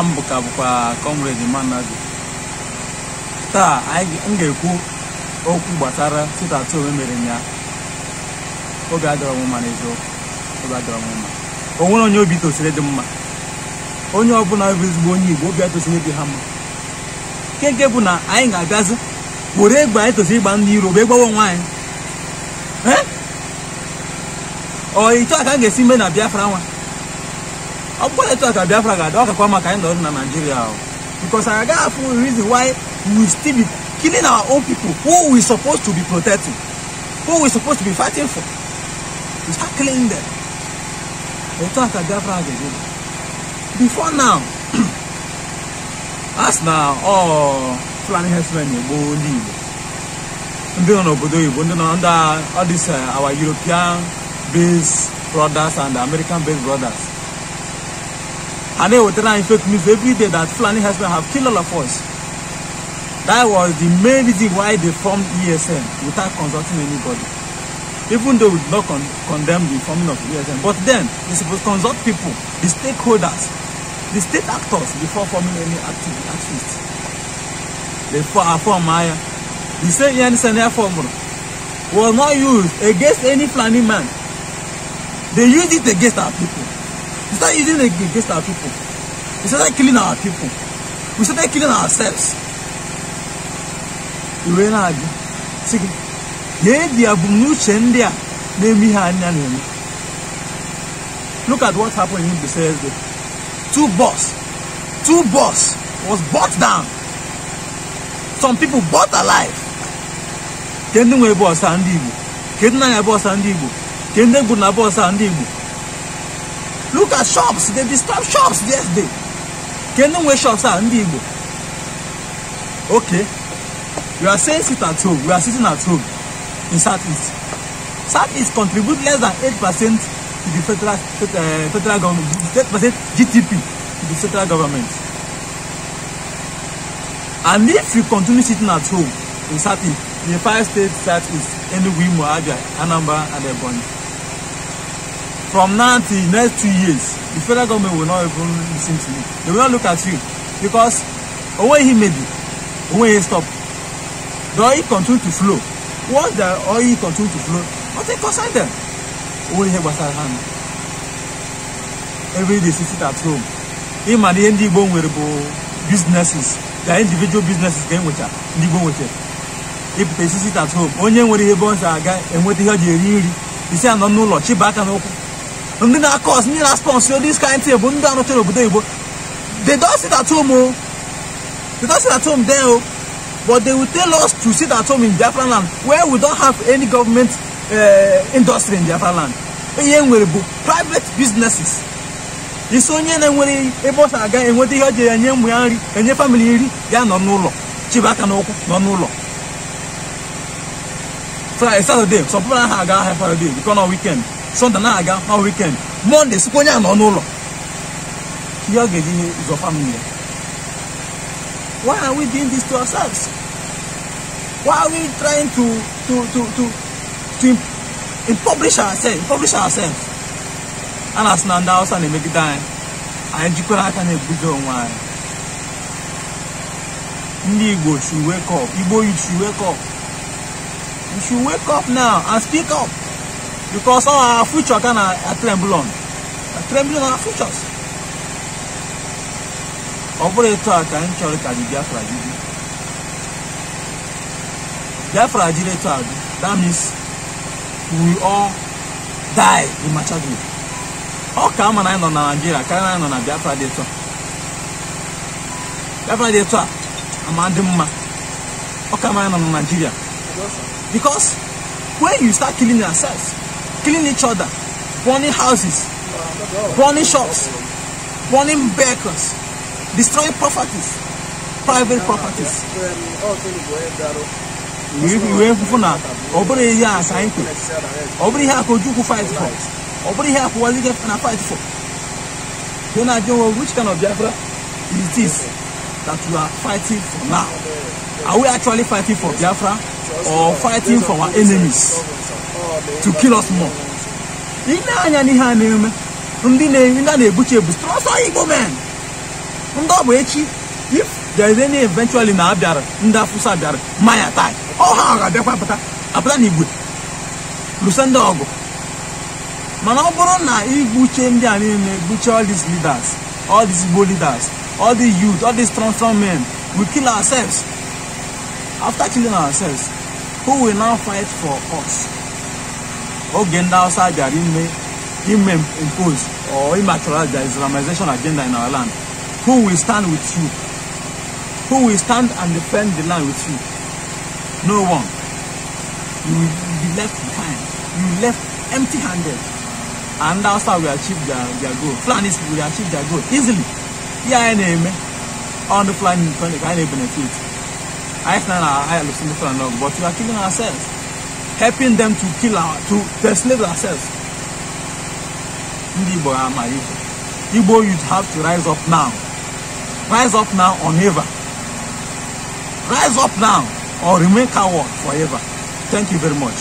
na mbụ ka bụkwa kọmredi Managụ taa m ga-ekwu okwu gbasara sit at home emere ya oge adọrọ m mma n'eziokwu oge adọrọ m mma onye obi tosiri dị mma onye ọbụla bụ ezigbo onye Igbo obi atosiri dị ha mma nke nke bụ na anyị ga-abịazi were egbe anyị tosiri ịgba ndị iro bụ egbawa onwe anyị ọ ịchọ ka m ga-esi mee na Biafra nwa ọ bụkwa etu a ka biafra ga-adị ọ kakwa maka anyị nọrụ na naijiria ahụ reason why we still be killing our own people who we supposed to be protecting who we supposed to be fighting for we start killing them etu a ka biafra ga-ebi before now as na ọ fulani herdsmen na-egbu ndị igbo ndị nọ n'obodo oyibo ndị nọ under all these our european based brothers and american based brothers And then with that infect means every day that Fulani herdsmen have killed all of us. That was the main reason why they formed ESN without consulting anybody. Even though we did not con condemn the forming of ESN, but then they supposed to consult people, the stakeholders, the state actors before forming any active activist. They form Maya. The same ESN formula was not used against any Fulani man. They used it against our people. We start using it against our people. We started killing our people. We started killing ourselves. Iwe na-agụ sị gị lee di abumnuche ndị a na-eme ihe anyị na-eme. Look at what happened in Mbaise yesterday. Two bus, two bus was bought down. Some people bought alive. Kedu nwe bọọsụ ndị Igbo? Kedu na ya bọọsụ ndị Igbo? Kedu na egbu na bọọsụ ndị Igbo? look at shops they disturb shops yesterday kenu wey shops are ndị igbo okay you are saying sit at home we are sitting at home in southeast southeast contribute less than eight percent to the federal uh, federal government eight percent gdp to the federal government and if you continue sitting at home in southeast in the five states southeast enugu imo abia anambra and ebonyi from now till next two years the federal government will not even lis ten to you they will not look at you because owó yìí maybe owó yìí stop the oil continue to flow once the oil continue to flow nothing concern them owó yìí gbasa hand every day she sit at home him and ihe ndị go nwere bụ businesses their individual businesses ka e nwecha ndị igbo nwecha ịpụta isi sit at home onye nwere ihe ebe ọ si aga enweta ihe ọ ji eri nri isi anọ n'ụlọ chiba aka n'ụkwụ and then of cause, need response sponsor. this kind of thing but don't tell you but they don't sit at home oh they don't sit at home there oh but they will tell us to sit at home in Biafra land where we don't have any government uh, industry in Biafra land ihe e nwere bụ private businesses isi onye na-enwere ebe ọ sa aga enweta ihe ọ jere enye ụmụ ya nri enye famili nri ya nọ n'ụlọ chibaka n'ụkwụ nọ n'ụlọ Friday, Saturday, some people have a high Friday, because on weekend sọnde na-aga ma wikend mọnde sikwa onye a nọ n'ụlọ ihe ọ ga-eji ihe ụzọ famili ya why are we doing this to ourselves why are we trying to to to to to impoverish ourselves impoverish ourselves a na-asị na ndị Hausa na-emegide anyị anyị jikwara aka na-ebudo onwe anyị ndị Igbo should wake up Igbo you should wake up you should wake up now and speak up because our future kind of tremble on tremble on our futures ọ bụrụ etu a ka anyị chọrọ ka anyị biafra dị biafra jiri etu a dị that means we all die in machadu ọ ka ama na anyị nọ na naijiria karịa na anyị nọ na biafra dị etu a biafra dị etu a ama dị mma ọ ka ama anyị nọ na naijiria because when you start killing yourself killing each other, burning houses, burning shops, burning vehicles, destroying properties, private properties. wee kwufu na ọ bụrụ ihe a ka anyị kwere ọ bụrụ ihe a ka Ojukwu fight for ọ bụrụ ihe a ka Waziri na fight for you na ajụ nwe which kind of Biafra is this that you are fighting for now are we actually fighting for Biafra or fighting for our enemies to kill us more. Ị na-anya n'ihe a na-eme ndị na na-ebuchi ebu strọsọ Igbo men ndị ọ bụ echi if there is any eventually na abịara ndị afụsa bịara maya tai ọ ha ga-abịakwa apụta apụta na igwe lụsa ndị ọgụ mana ọ bụrụ na igbuche ndị a niile gbuchie all these leaders all these Igbo leaders all these youth all these strong strong men we kill ourselves after killing ourselves who will now fight for us oge ndị Hausa bịara ime ime impose or immaterialize the Islamization agenda in our land who will stand with you who will stand and defend the land with you no one you will be left behind you will be left empty-handed and ndị Hausa will achieve their their goal Fulanis will achieve their goal easily ihe anyị na-eme on the Fulani ka anyị na-ebenefit anyị sị na anyị alụsị ndị Fulani ọgụ but we are killing ourselves helping them to kill our to, to enslave ourselves ndị igbo ama igbo igbo youth have to rise up now rise up now or never rise up now or remain coward forever thank you very much